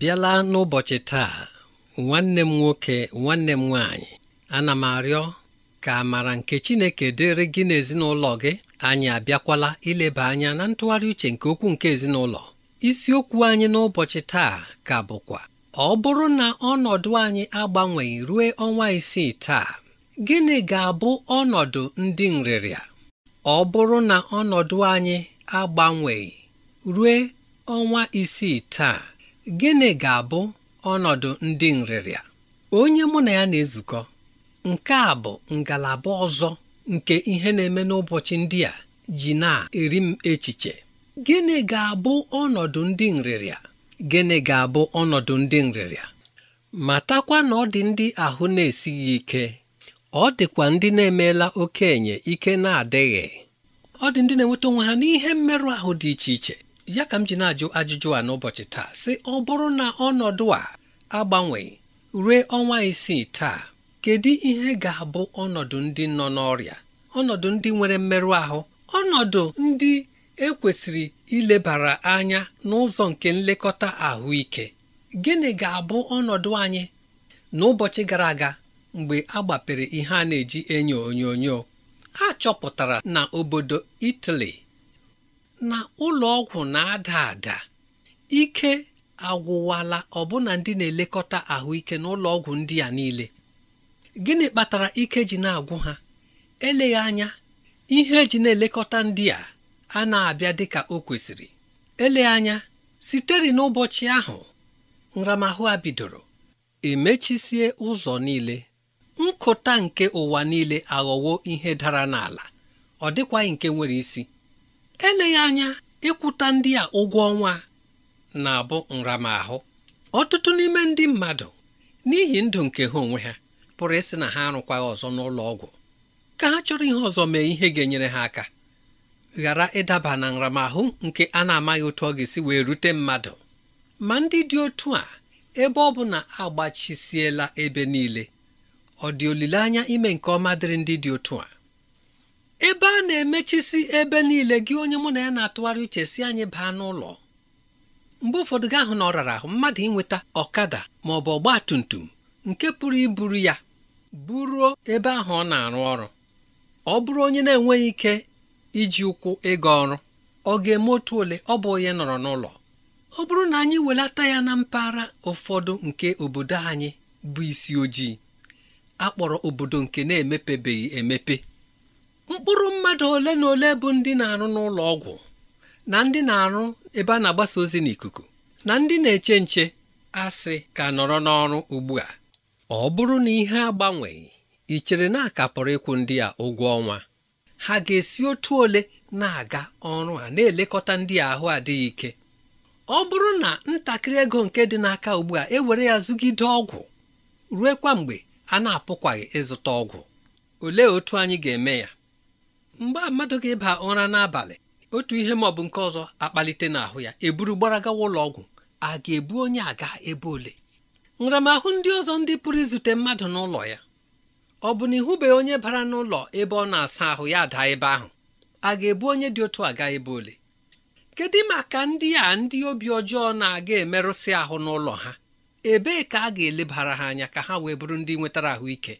bịala n'ụbọchị taa nwanne m nwoke nwanne m nwaanyị ana m arịọ ka amara nke Chineke dịrị gị na ezinụlọ gị anyị abịakwala ileba anya na ntụgharị uche nke okwu nke ezinụlọ isiokwu anyị n'ụbọchị taa ka bụkwa ọ bụrụ na ọnọdụ anyị agbanweghị ruo ọnwa isii taa gịnị ga-abụ ọnọdụ ndị nrịrịa ọ bụrụ na ọnọdụ anyị agbanweghị ruo ọnwa isii taa gịnị ga-abụ ọnọdụ ndị nrịrịa onye mụ na ya na-ezukọ nke a bụ ngalaba ọzọ nke ihe na-eme n'ụbọchị ndị a ji na-eri m echiche gịnị ga-abụ ọnọdụ ndị nrịrịa gịnị ga-abụ ọnọdụ ndị nrịrịa matakwa na ọ dị ndị ahụ na-esighị ike ọ dịkwa ndị na-emeela okenye ike na-adịghị ọ dị ndị na-enweta onwe ha n'ihe mmerụ ahụ dị iche iche ya ka m ji na-ajụ ajụjụ a n'ụbọchị taa sị ọ bụrụ na ọnọdụ a agbanwe ruo ọnwa isii taa kedu ihe ga-abụ ọnọdụ ndị nọ n'ọrịa ọnọdụ ndị nwere mmerụ ahụ ọnọdụ ndị ekwesịrị ilebara anya n'ụzọ nke nlekọta ahụike gịnị ga-abụ ọnọdụ anyị n'ụbọchị gara aga mgbe a gbapere ihe a na-eji enyo onyonyo a chọpụtara na obodo Italy na ụlọ ọgwụ na-ada ada ike agwụwala ọbụna ndị na-elekọta ahụike ụlọ ọgwụ ndị a niile gịnị kpatara ike ji na-agwụ ha eleghị anya ihe eji na-elekọta ndị a a na-abịa dịka o kwesịrị eleghị anya sitere n'ụbọchị ahụ nramahụ a bidoro emechisie ụzọ niile nkụta nke ụwa niile aghọwo ihe dara n'ala ọ dịkwaghị nke nwere isi eleghị anya ịkwụta ndị a ụgwọ ọnwa na-abụ nramahụ ọtụtụ n'ime ndị mmadụ n'ihi ndụ nke ha onwe ha pụrụ ịsị na ha arụkwaghị ọzọ n'ụlọ ọgwụ ka ha chọrọ ihe ọzọ mee ihe ga-enyere ha aka ghara ịdaba na nramahụ nke a na-amaghị otu ọ ga-esi wee rute mmadụ ma ndị dị otu a ebe ọ bụ na agbachisiela ebe niile ọ dị olileanya ime nke ọma dịrị ndị dị otu a ebe a na-emechisi ebe niile gị onye mụ na ya na-atụgharị uche si anyị baa n'ụlọ mgbe ụfọdụ gị ahụ na ọ rara ahụ mmadụ ịnweta ọkada ma ọ bụ ọgba tum tum nke pụrụ iburu ya buruo ebe ahụ ọ na-arụ ọrụ ọ bụrụ onye na-enweghị ike iji ụkwụ ịga ọrụ ọ ga-eme otu ole ọ bụ onye nọrọ n'ụlọ ọ bụrụ na anyị welata ya na mpaghara ụfọdụ nke obodo anyị bụ isi ojii akpọrọ obodo nke na-emepebeghị emepe mkpụrụ mmadụ ole na ole bụ ndị na-arụ n'ụlọ ọgwụ na ndị na-arụ ebe a na-agbasa ozi n'ikuku na ndị na-eche nche asị ka nọrọ n'ọrụ ugbu a ọ bụrụ na ihe agbanweghị i chere na akapụrụ ịkwụ ndị a ụgwọ ọnwa ha ga-esi otu ole na-aga ọrụ a na-elekọta ndị ahụ adịghị ike ọ bụrụ na ntakịrị ego nke dị n'aka ugbu a ewere ya zụgide ọgwụ kwa mgbe a na-apụkwaghị ịzụta ọgwụ olee otu anyị ga-eme ya mgbe mmadụ ga-eba ụra n'abalị otu ihe ma ọ bụ nke ọzọ akpalite n'ahụ ya eburu gbara gawa ụlọ ọgwụ a ga-ebu onye aga ebe ole nramahụ ndị ọzọ ndị pụrụ izute mmadụ n'ụlọ ya ọ bụ na ịhụbeghị onye bara n'ụlọ ebe ọ na-asa ahụ ya daa ebe ahụ a ga-ebu onye dị otu aga ebe ole kedu maka ndị a ndị obi ọjọọ na-aga emerụsị ahụ n'ụlọ ha ebee ka a ga-elebara ha anya ka ha wee bụrụ ndị nwetara ahụike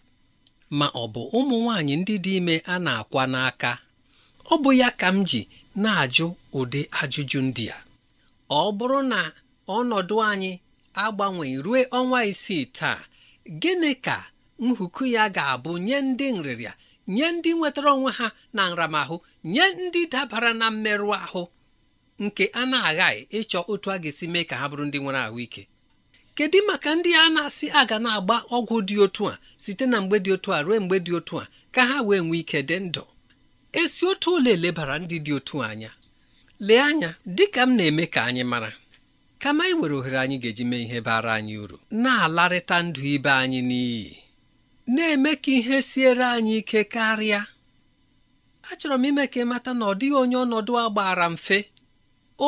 ma ọ bụ ụmụ nwanyị ndị dị ime a na-akwa n'aka ọ bụ ya ka m ji na-ajụ ụdị ajụjụ ndị a ọ bụrụ na ọnọdụ anyị agbanweghị ruo ọnwa isii taa gịnị ka nhuku ya ga-abụ nye ndị nrịrịa nye ndị nwetara onwe ha na nramahụ nye ndị dabara na mmerụ ahụ nke a na-aghaghị ịchọ otu a ga-esi mee ka ha bụrụ ndị nwere ahụike kedu maka ndị a na-asị aga na-agba ọgwụ dị otu a site na mgbe dị otu a ruo mgbe dị otu a ka ha wee nwee ike dị ndụ esi otu ole elebara ndị dị otu anya lee anya dịka m na-eme ka anyị mara kama anyị ohere anyị ga-eji mee ihe bara anyị uru na-alarịta ndụ ibe anyị n'iyi na-eme ka ihe siere anyị ike karịa achọrọ m ime ka mata na ọ dịghị onye ọnọdụ a gbara mfe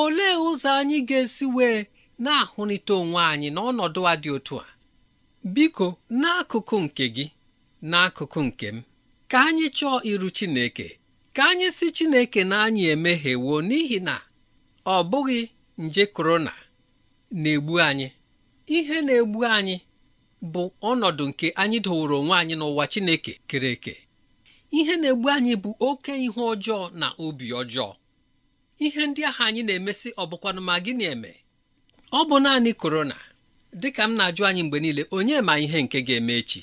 olee ụzọ anyị ga-esi wee na-ahụrịta onwe anyị n'ọnọdụ a dị otu a biko n'akụkụ nke gị n'akụkụ nke m ka anyị chọọ iru Chineke ka anyị si Chineke na anyị emeghewo n'ihi na ọ bụghị nje korona na-egbu anyị ihe na-egbu anyị bụ ọnọdụ nke anyị dowere onwe anyị n'ụwa Chineke kere eke ihe na-egbu anyị bụ oke ihe ọjọọ na obi ọjọọ ihe ndị ahụ anyị na-emesị ọ bụkwanụ ma gịnị eme ọ bụ naanị korona dịka m na-ajụ anyị mgbe niile onye ma ihe nke ga-eme echi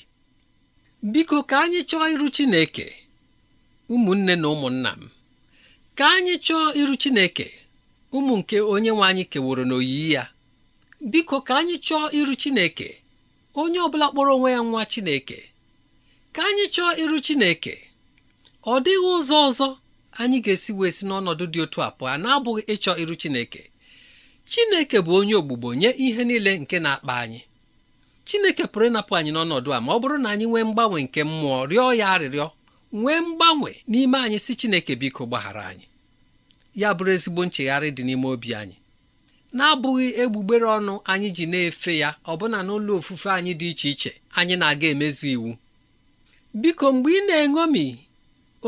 biko ka anyị chọọ iru Chineke ụmụnne na ụmụnna m ka anyị chọọ iru Chineke ụmụ nke onye nwe anyị keworo n'oyiyi ya biko ka anyị chọọ iru Chineke onye ọbụla kpọrọ onwe ya nwa Chineke ka anyị chọọ iru Chineke ọ dịghị ụzọ ọzọ anyị ga-esi wee si n'ọnọdụ dị otu a pụọ na-abụghị ịchọ iru Chineke chineke bụ onye ogbugbo nye ihe niile nke na-akpa anyị chineke pụrụ ịnapụ anyị n'ọnọdụ a ma ọ bụrụ na anyị nwee mgbanwe nke mmụọ rịọ ya arịrịọ nwee mgbanwe n'ime anyị si chineke biko gbaghara anyị ya bụrụ ezigbo nchegharị dị n'ime obi anyị na-abụghị egbugbere ọnụ anyị ji na-efe ya ọbụna n'ụlọ ofufe anyị dị iche iche anyị na-aga emezu iwu biko mgbe ị na-eṅomi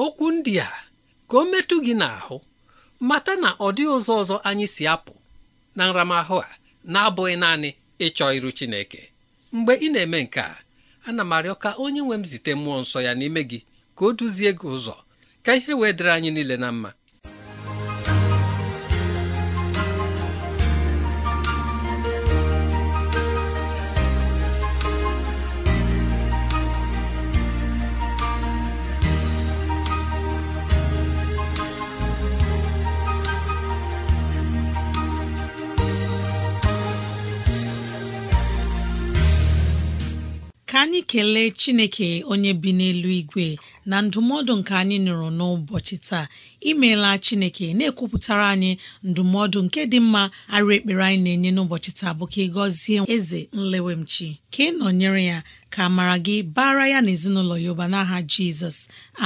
okwu ndị a ka o metụ gị n'ahụ mata na ọ dịghị ụzọ ọzọ anyị si apụ na nramahụ a na-abụghị naanị ịchọ iru Chineke mgbe ị na-eme nke a ana m arịọ ka onye nwe m zite mmụọ nsọ ya n'ime gị ka o duzie gị ụzọ ka ihe wee dịrị anyị niile na mma anyị kelee chineke onye bi n'elu igwe na ndụmọdụ nke anyị nụrụ n'ụbọchị taa imeela chineke na-ekwupụtara anyị ndụmọdụ nke dị mma arụ ekpere anyị na-enye n'ụbọchị taa bụ ka ị gọzie eze nlewemchi ka ị nọnyere ya ka mara gị bara ya na ezinụlọ ya ụba n'aha jizọs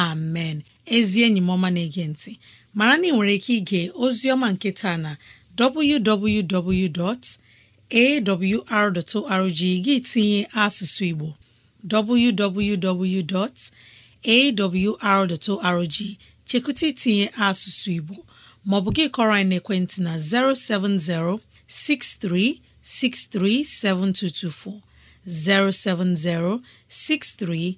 amen ezi enyi m ọma na-ege ntị mara na ị nwere ike ige ozi ọma nke taa na www awr.org gị tinye asụsụ Igbo www.awr.org chekụta itinye asụsụ Igbo maọbụ gị kọrọ anyị n'ekwentị na 070 63 7224 070 63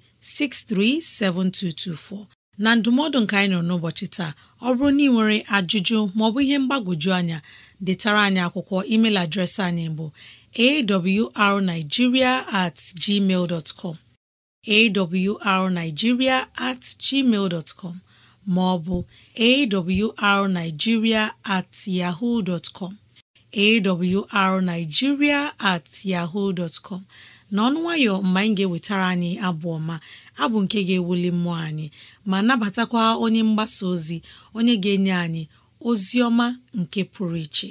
7224 na ndụmọdụ nka anyị nọ n'ụbọchị taa ọ bụrụ na ị nwere ajụjụ maọbụ ihe mgbagwoju anya detara anyị akwụkwọ email adreesị anyị bụ awrnigeria at gmail com at gmail ma ọ bụ at yaho dot com awrnigeria at com nwayọ mgbe anyị ga-ewetara anyị abụ ọma abụ nke ga-ewuli mmụọ anyị ma nabatakwa onye mgbasa ozi onye ga-enye anyị ozi ọma nke pụrụ iche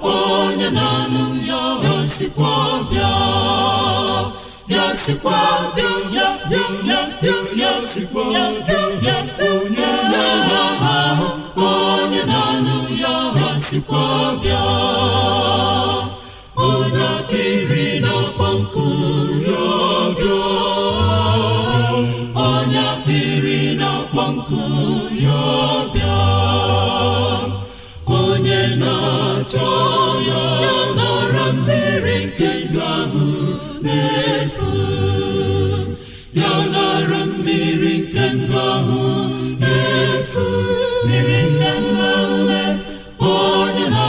onye na-anụ ya sikwa bịa ya sikwa bịa ya bịa ya bịa ya bịa ya ya sikwa bịa chọọ ya n'ọra mmiri nke ndụ ahụ na-efu ya n'ọra mmiri nke ndụ ahụ na-efu mmiri nke ndụ ahụ na-efu ya na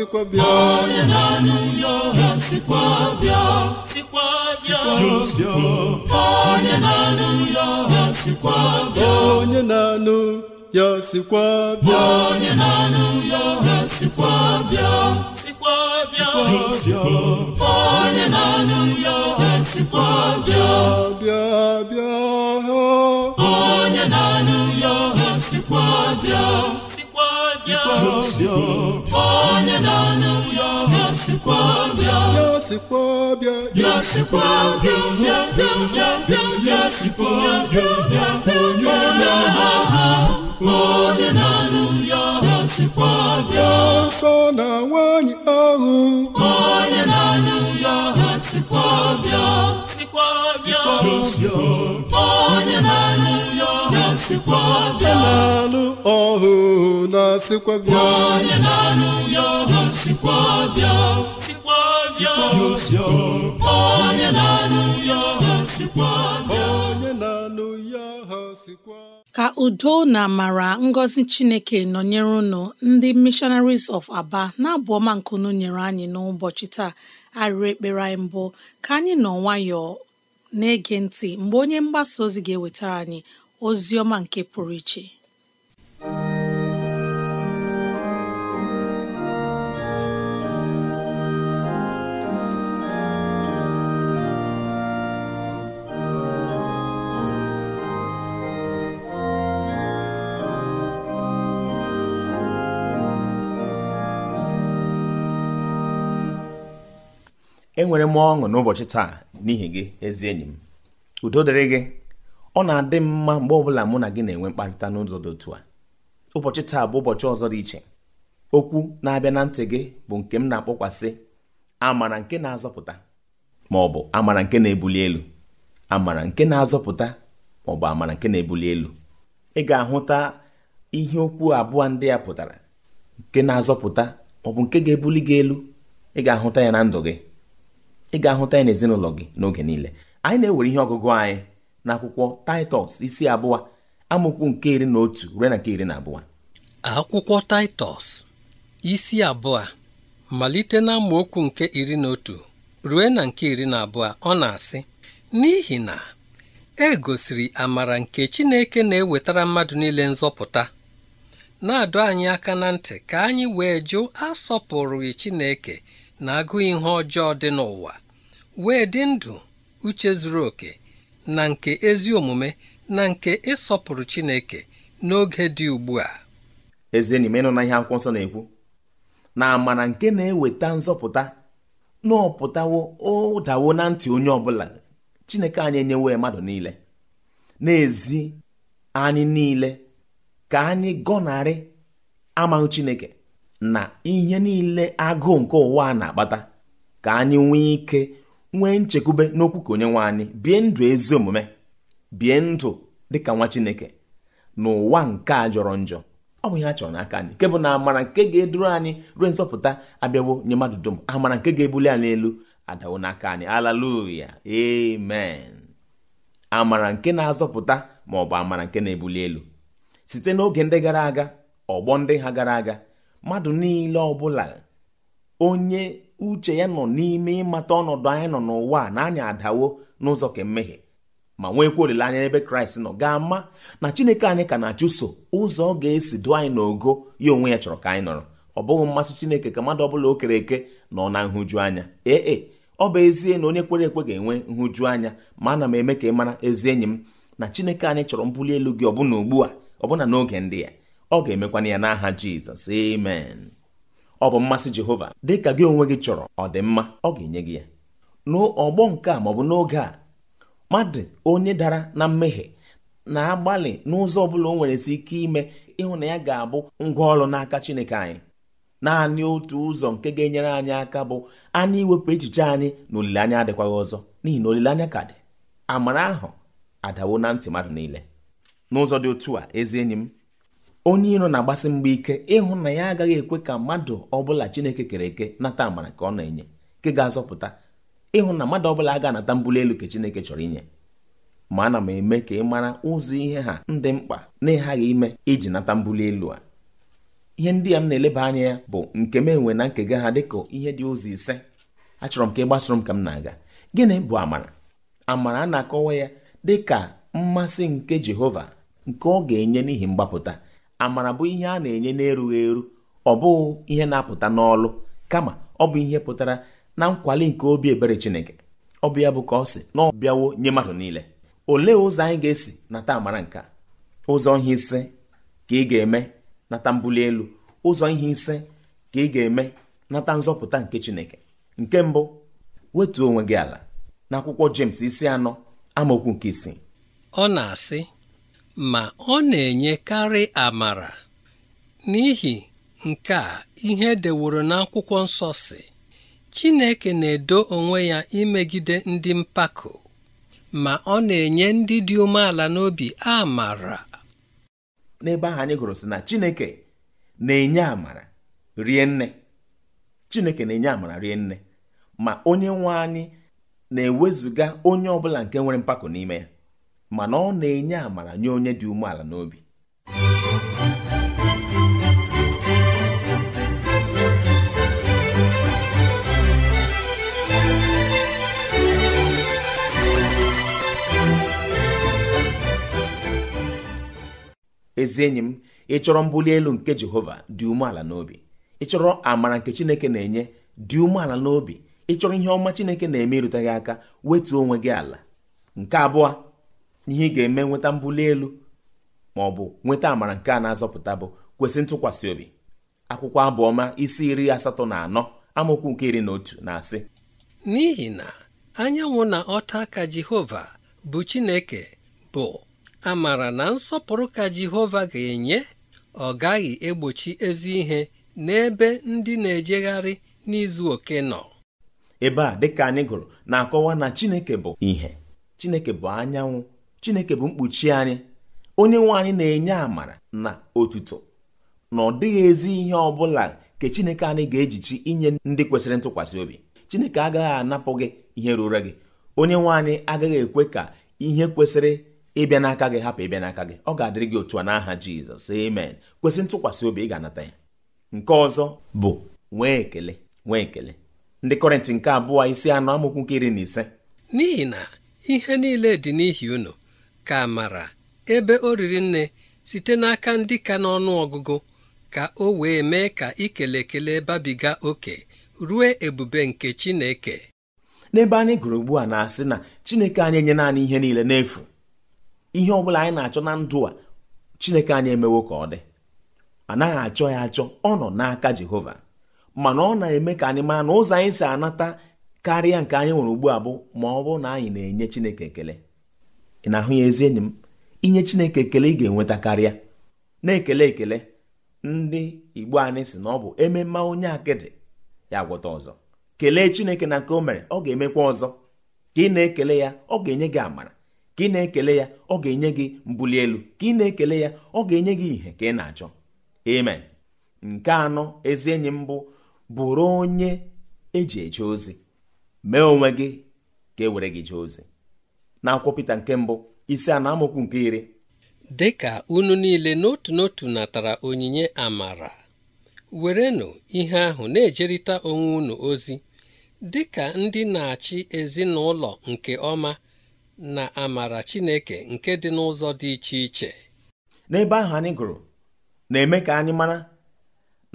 sikwa bịa onye na-anụ ya ọha sikwa bịa sikwa onye na-anụ ya ọha sikwa bịa onye na-anụ ya sikwa bịa onye na-anụ ya ọha sikwa bịa bịa onye na-anụ ya bịa bịa onye na-anụ ya ọha sikwa bịa sikwa bịa onye na-anụ ya bịa ọbịa ya onye na ya anụ ya ya ya nsọ na nwanyị ahụ onye na-anụ ya ya sikwa ya ya onye na-anụ ọhụ na bịa onye na ya ọhụ sikwa bịa sikwa bịa onye na ya ọhụ sikwa bịa onye na ya ọhụ sikwa ka udo na amara ngọzi chineke nọnyere unu ndị missionaries of aba na-abụ ọma nkunu nyere anyị n'ụbọchị taa arịrị ekpere anyị mbụ ka anyị nọ nwayọọ na-ege ntị mgbe onye mgbasa ozi ga-ewetara anyị ozi ọma nke pụrụ iche enwere m ọṅụ n'ụbọchị taa n'ihi gị ezi enyi m udo dịrị gị ọ na-adị mma mgbe ọbụla mụ na gị na-enwe mkparịta n'ụzọ dị otu a ụbọchị taa bụ ụbọchị ọzọ dị iche okwu na-abịa na ntị gị bụ nke m na-akpọkwasị amara nke na-azọpụta ma ọ bụ amara nke na-ebuli elu amara nke na-azọpụta ma ọ bụ amara nke na-ebuli elu ị ga-ahụta ihe okwu abụọ ndị ya pụtara nke na-azọpụta ma ọ bụ nke ga-ebuli gị elu ị ga-ahụta ya na ndụ gị ị ga-ahụta ya n'ezinụlọ gị n'oge niile anyị na-ewere ihe ọgụgụ anyị n'akwụkwọ titus isi abụọ amụkwu nke iri na otu ruo na nke iri na abụọ akwụkwọ taịtọs isi abụọ malite na amaokwu nke iri na otu ruo na nke iri na abụọ ọ na-asị n'ihi na e gosiri amara nke Chineke na-ewetara mmadụ niile nzọpụta na-adọ anyị aka na ntị ka anyị wee jụ asọpụrụghị Chineke na agụ ihe ọjọọ dị n'ụwa wee dị ndụ uche zuru oke na nke ezi omume na nke ịsọpụrụ Chineke n'oge dị ugbu a Eze enyi m na ihe akwụkwọ nsọ na-ekwu na amara nke na-eweta nzọpụta n'ọpụtawo ụdawo na ntị onye ọbụla Chineke anyị enyewe mmadụ niile n'ezi anyị niile ka anyị gọnarị amaghị Chineke na ihe niile agụụ nke ụwa na-akpata ka anyị nwee ike nwee nchekwube n'okwu ka onye nwe anyị bie ndụ ezi omume bie ndụ dịka nwa chineke n'ụwa nke a jọrọ njọ ọ bụ ihe a chọrọ n'aka anyị nke bụ na amara nke ga-eduru anyị ruo nzọpụta abịawo nye mmadụ dum amara nke ga-ebuli anyị elu adawo n'aka anyị alaluya amen amara nke na-azọpụta ma ọ bụ amara nke na-ebuli elu site n'oge ndị gara aga ọgbọ ndị ha gara aga mmadụ niile ọbụla onye uche ya nọ n'ime ịmata ọnọdụ anyị nọ n'ụwa na anyị adawo n'ụzọ ka ma nweekwa olileanya n'ebe kraịst nọ ga-ama na chineke anyị ka na-achụso ụzọ ọ ga-esi dụ anyị n'ogo ya onwe ya chọrọ ka anyị nọrọ ọ bụghị mmasị chineke ka mmadụ ọbụla o kere eke nọ na nhụju anya ee e, ọ bụ ezie na onye kwere ekwe ga-enwe nhụju anya ma ana m eme ka ị mara ezi enyi m na chineke anyị chọrọ mbuli elu gị ọbụna ugbu a ọbụna n'oge ndị ya ọ ga-emekwana ya n'aha jizọs amen ọ bụ mmasị Jehova dịka gị onwe gị chọrọ ọ mma ọ ga-enye gị ya n'ọgbọ nke a maọbụ n'oge a mmadụ onye dara na mmehie na-agbalị n'ụzọ ọbụla o nwere si ike ime ịhụ na ya ga-abụ ngwa ọrụ n'aka Chineke anyị naanị otu ụzọ nke ga-enyere anyị aka bụ anyị iwepụ echiche anyị na olileanya adịkwaghị ọzọ n'ihi na olileanya ka dị amara ahụ adawo na ntị mmadụ niile n'ụzọ dị otu a ezi enyi m onye iro na-agbasi mgbe ike ịhụ na ya agaghị ekwe ka mmadụ ọbụla chineke kere eke nata amara ka ọ na-enye nke ga-azọpụta ịhụ na mmadụ ọbụla aga anata mbuli elu ka chineke chọrọ inye ma ana m eme ka ị mara ụzọ ihe ha ndị mkpa na ịghaghị ime iji nata mbuli elu a ihe ndị a m na-eleba anya ya bụ nke m enwe na nkega ha dịka ihe dị ụzọ ise achọrọ m ka ị gbasoro m ka m na-aga gịnị bụ amara amara a na-akọwa ya dị ka mmasị nke Jehova nke ọ ga-enye n'ihi mgbapụta amara bụ ihe a na-enye n'erughị eru ọ bụghị ihe na-apụta n'ọlụ kama ọ bụ ihe pụtara na nkwali nke obi ebere Chineke ọ bụ ya bụ ka ọ sị na ọ bịawo nye mmadụ niile olee ụzọ anyị ga-esi nata amara nke ụzọ ihe ise ka ị ga-eme nata mbuli elu ụzọ ihe ise ka ị ga-eme nata nzọpụta nke Chineke nke mbụ wetuo onwe gị ala na akwụkwọ James isi anọ amaokwu nke isii ọ na-asị ma ọ na-enyekarị amara n'ihi nke a ihe e deworo n'akwụkwọ nsọ si Chineke na-edo onwe ya imegide ndị mpako ma ọ na-enye ndị dị umeala n'obi amara n'ebe ahụ anyị gụrụ sị na Chineke na-enye amara rie nne Chineke na-enye amara rie nne ma onye nwe anyị na-ewezuga onye ọbụla bụla nke nwere mpako n'ime ya mana ọ na-enye amara nye onye dị umeala n'obi ezi enyi m ịchọrọ chọrọ elu nke jehova dị umeala n'obi ịchọrọ chọrọ amara nke chineke na-enye dị umeala n'obi ị chọrọ ihe ọma chineke na-eme aka wetuo onwe gị ala nke abụọ ihe ị ga-eme nweta mbuli elu ma ọ bụ nweta amara nke a na-azọpụta bụ kwesị ntụkwasị obi akwụkwọ abụọma isi iri asatọ na anọ amaokwu nke iri na otu na-asị n'ihi na anyanwụ na ọta ka Jehova bụ Chineke bụ amara na nsọpụrụ ka Jehova ga-enye ọ gaghị egbochi ezi ihe n'ebe ndị na-ejegharị n'izu oke nọ ebe a dịka anyị gụrụ na-akọwa na Chineke bụ ihe Chineke bụ anyanwụ chineke bụ mkpuchi anyị onye nwe anyị na-enye amara na otuto na ọ dịghị ezi ihe ọ bụla nke chineke anyị ga-ejichi inye ndị kwesịrị ntụkwasị obi chineke agaghị anapụ gị ihe ruru gị onye nwe anyị agaghị ekwe ka ihe kwesịrị ịbịa n'aka gị hapụ ịbịa n'aka gị ọ ga-adịrị gị otu a n'aha jizọs amen kwesị ntụkwasị obi ị ga-anata ya nke ọzọ bụ nwee ekele nwee ekele ndị kọrịntị nke abụọ isi anọ amụkwu nke iri na ise n'ihi na ihe niile dị n'ihi unu ka amara ebe o riri nne site n'aka ndị ka n'ọnụ ọgụgụ ka o wee mee ka ikele ekele babiga oke rue ebube nke Chineke n'ebe anyị gụrụ ugbu a na-asị na Chineke anyị enye naanị ihe niile n'efu ihe ọ bụla anyị na-achọ na ndụ a Chineke anyị emewo ka ọ dị anaghị achọ ya achọ ọ nọ n'aka Jehova mana ọ na-eme ka anyị mara na ụzọ anyị si anata karịa nke anyị nwere ugbu a bụ ma ọ bụrụ na anyị na-enye Chineke ekele ị na-ahụ ya ezi enyi m inye chineke ekele ị ga-enweta karịa na-ekele ekele ndị igbo anyị si na ọ bụ ememme onye akịdị ya gwọta ọzọ kelee chineke na nke o mere ọ ga-emekwa ọzọ ka ị na-ekele ya ọ ga-enye gị amara ka ị na-ekele ya ọ ga-enye gị mbuli elu ka ị na-ekele ya ọ ga-enye gị ihe ka ị na-achọ amen nke anọ ezi enyi m bụ bụrụ onye eji eje ozi mee onwe gị ka e were gị jee ozi na akwụkwọ Pita nke mbụ isi a na amaokwu nke iri dị ka unu niile n'otu n'otu natara onyinye amara werenụ ihe ahụ na-ejerịta onwe unu ozi dị ka ndị na-achị ezinụlọ nke ọma na amara Chineke nke dị n'ụzọ dị iche iche n'ebe ahụ anyị gụrụ na-eme ka anyị mara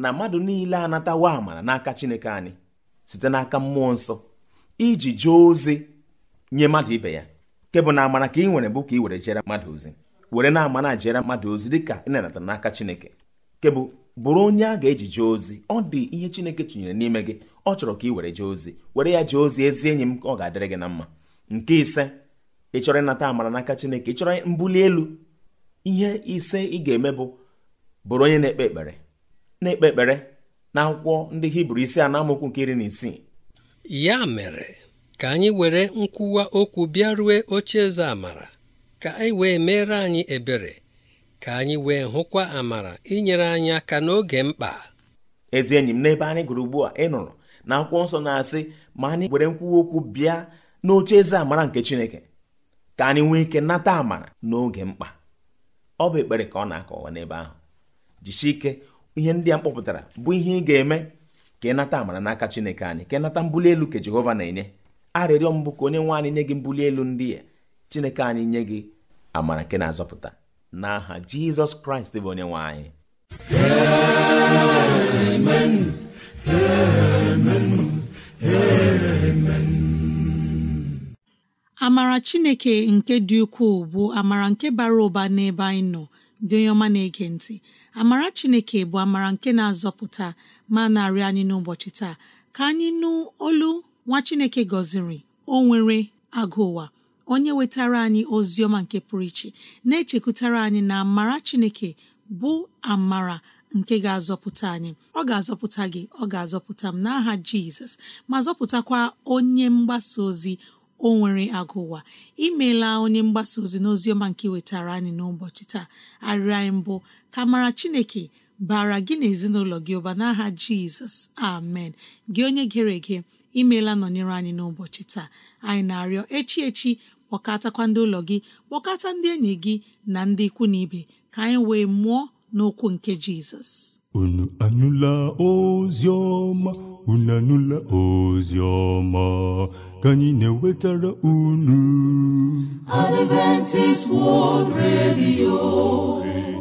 na mmadụ niile anatawo amara n'aka Chineke anyị site n'aka mmụọ nsọ iji jee ozi nye mmadụ ibe ya nke bụ na amara ka ị nwere bụ ka ị were jere mmadụ ozi were na-amana jere mmadụ ozi ka ị nanata n'aka chineke nke bụ bụrụ onye a ga-eji jee ozi ọ dị ihe chineke tụnyere n'ime gị ọ chọrọ ka ị were jee ozi were ya jee ozi ezi enyi m ka ọ ga-adịrị gị na mma nke ise ị chọrọ ịnata amara n'aka chineke ị chọrọ mbuli elu ihe ise ị ga-eme bụ bụrụ onye na-ekpe ekpere na-ekpe ekpere na akwụkwọ ndị hibru isi a na amaokwu nke iri na isii ya mere ka anyị were nkwuwa okwu bịa rue oche eze amara ka anyị wee meere anyị ebere ka anyị wee hụkwa amara inyere anyị aka n'oge mkpa ezi enyi m n'ebe anyị gụrụ ugbu a ị nụrụ na akwụkwọ nsọ na-asị ma anyị were nkwuwa okwu bịa n'oche eze amara nke Chineke ka anyị nwee ike nata amara n'oge mkpa ọ bụ ekpere ka ọ na-akọwa n'ebe ahụ jisie ike ihe ndị a mkpọpụtara bụ ihe ị ga-eme ka ị nata amara n'aka Chineke anyị ka ị nata mbuli elu ka Jehova na-enye arịrịọ mbụ ka onye nwe anyị nye gị mbuli elu ndị ya chineke anyị nye gị amara nke na-azọpụta n'aha jizọs kraịst bụ onye nwe anyị amara chineke nke dị ukwuu bụ amara nke bara ụba n'ebe anyị nọ dị onye ọma na-ege ntị amara chineke bụ amara nke na-azọpụta ma narị anyị n'ụbọchị taa ka anyị nụ olu nwa chineke gọziri o nwere agụ ụwa onye wetara anyị ozi ọma nke pụrụ iche na-echekwutara anyị na amara chineke bụ amara nke ga-azọpụta anyị ọ ga-azọpụta gị ọ ga-azọpụta m n'aha jizọs ma zọpụtakwa onye mgbasa ozi o nwere agụ ụwa imeela onye mgbasa ozi n'oziọma nke wetara anyị n'ụbọchị taa arịrị anyị mbụ ka mara chineke bara gị na ezinụlọ gị ụba n'aha jizọs amen gị onye gere ege imeela nọnyere anyị n'ụbọchị taa anyị na-arịọ echi echi kpọkọtakwa ndị ụlọ gị kpọkọta ndị enyi gị na ndị ikwu na ibe ka anyị wee mụọ n'okwu nke jizọs unu anụla ozi ọma unu anụla ozi ọma ka anyị na-ewetara unu Adventist World Radio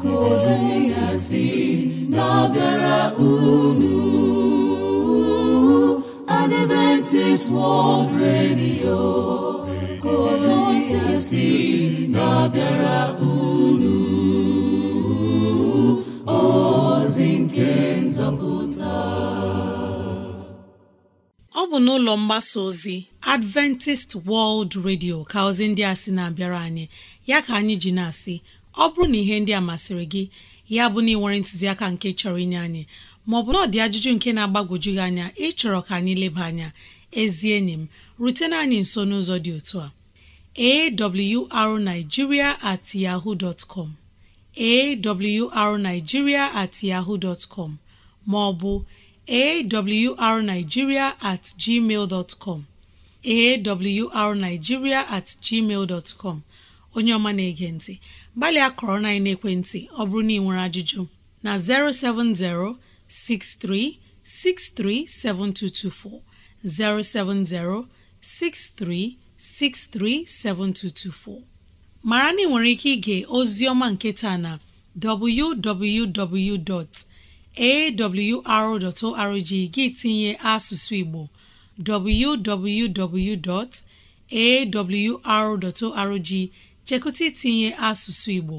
ka ozi ya si na-abịara unu Adventist World Radio kozisi na-abịara unu ozi nke nzọpụta ọ bụ n'ụlọ mgbasa ozi Adventist World Radio ka ozi ndị a sị na-abịara anyị ya ka anyị ji na-asị ọ bụrụ na ihe ndị a masịrị gị ya bụ na ị nwere ntụziaka nke chọrọ inye anyị maọbụ na ọ dị ajụjụ nke na-agbagwoju gị anya ịchọrọ ka anyị leba anya ezi enyi m rutena anyị nso n'ụzọ dị otu a awrnigeria at yahoo dot com awrnigeria at yahoo com maọbụ awrnigeria at gmail com awrnigeria at gmail com onye ọma na-ege ntị gbalịa kọrọ na ekwentị ọ bụrụ na ị nwere ajụjụ na 070 07063637224 mara na ị nwere ike ige ozi ọma nke taa na www.awr.org gị tinye asụsụ Igbo www.awr.org chekụta itinye asụsụ Igbo